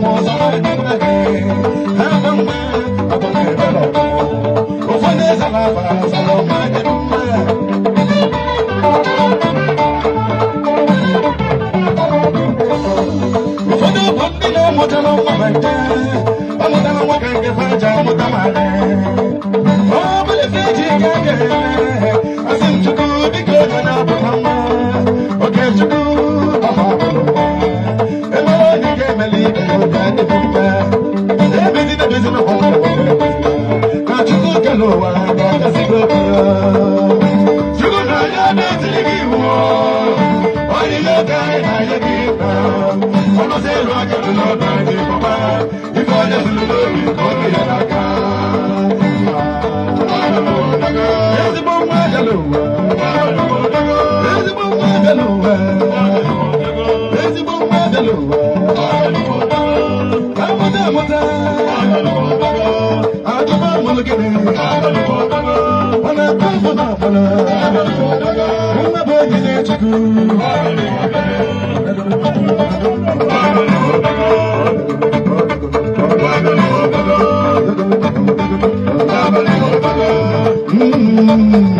Vamos a ver. ọsẹ ìlú akẹ́kọ̀ọ́ náà bá ní pọ̀pá ikọ̀ ọjọ́ sínú lórí ọdún yẹn lága. Ezigbo nwa ajalo uwe. Ezigbo nwa ajalo uwe. Ezigbo nwa Mm-hmm.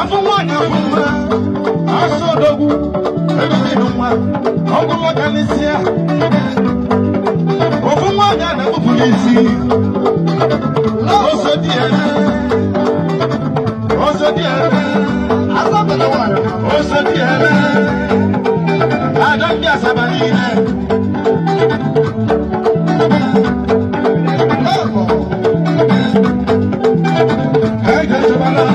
afọ nwaanyị afọ mma asọ odogwu ebezi n'ụwa ọgwụ nwoke n'isi ya ofu nwaanyị a na-ekpupu n'isi ọsọ dị ya ọsọ dị ya ọsọ dị ya ada ndị asaba niile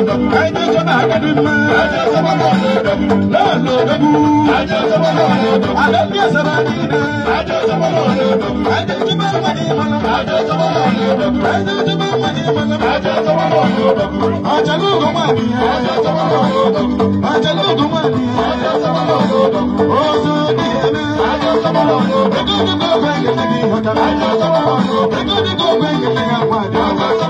Aje soba kadi ma. Aje soba kadi dogu. Lolo dogu. Aje soba kadi dogu. Alamiya soba kadi na. Aje soba kadi dogu. Aje soba kadi mana. Aje soba kadi dogu. Aje soba kadi mana. Aje soba kadi dogu. Aje lo goma ni. Aje soba kadi dogu. Aje lo goma ni. Aje soba kadi dogu. Ozo ni na. Aje soba kadi dogu. Dogu dogu kwenye ni hota. Aje soba kadi dogu. Dogu dogu kwenye ni hota. Aje soba kadi dogu.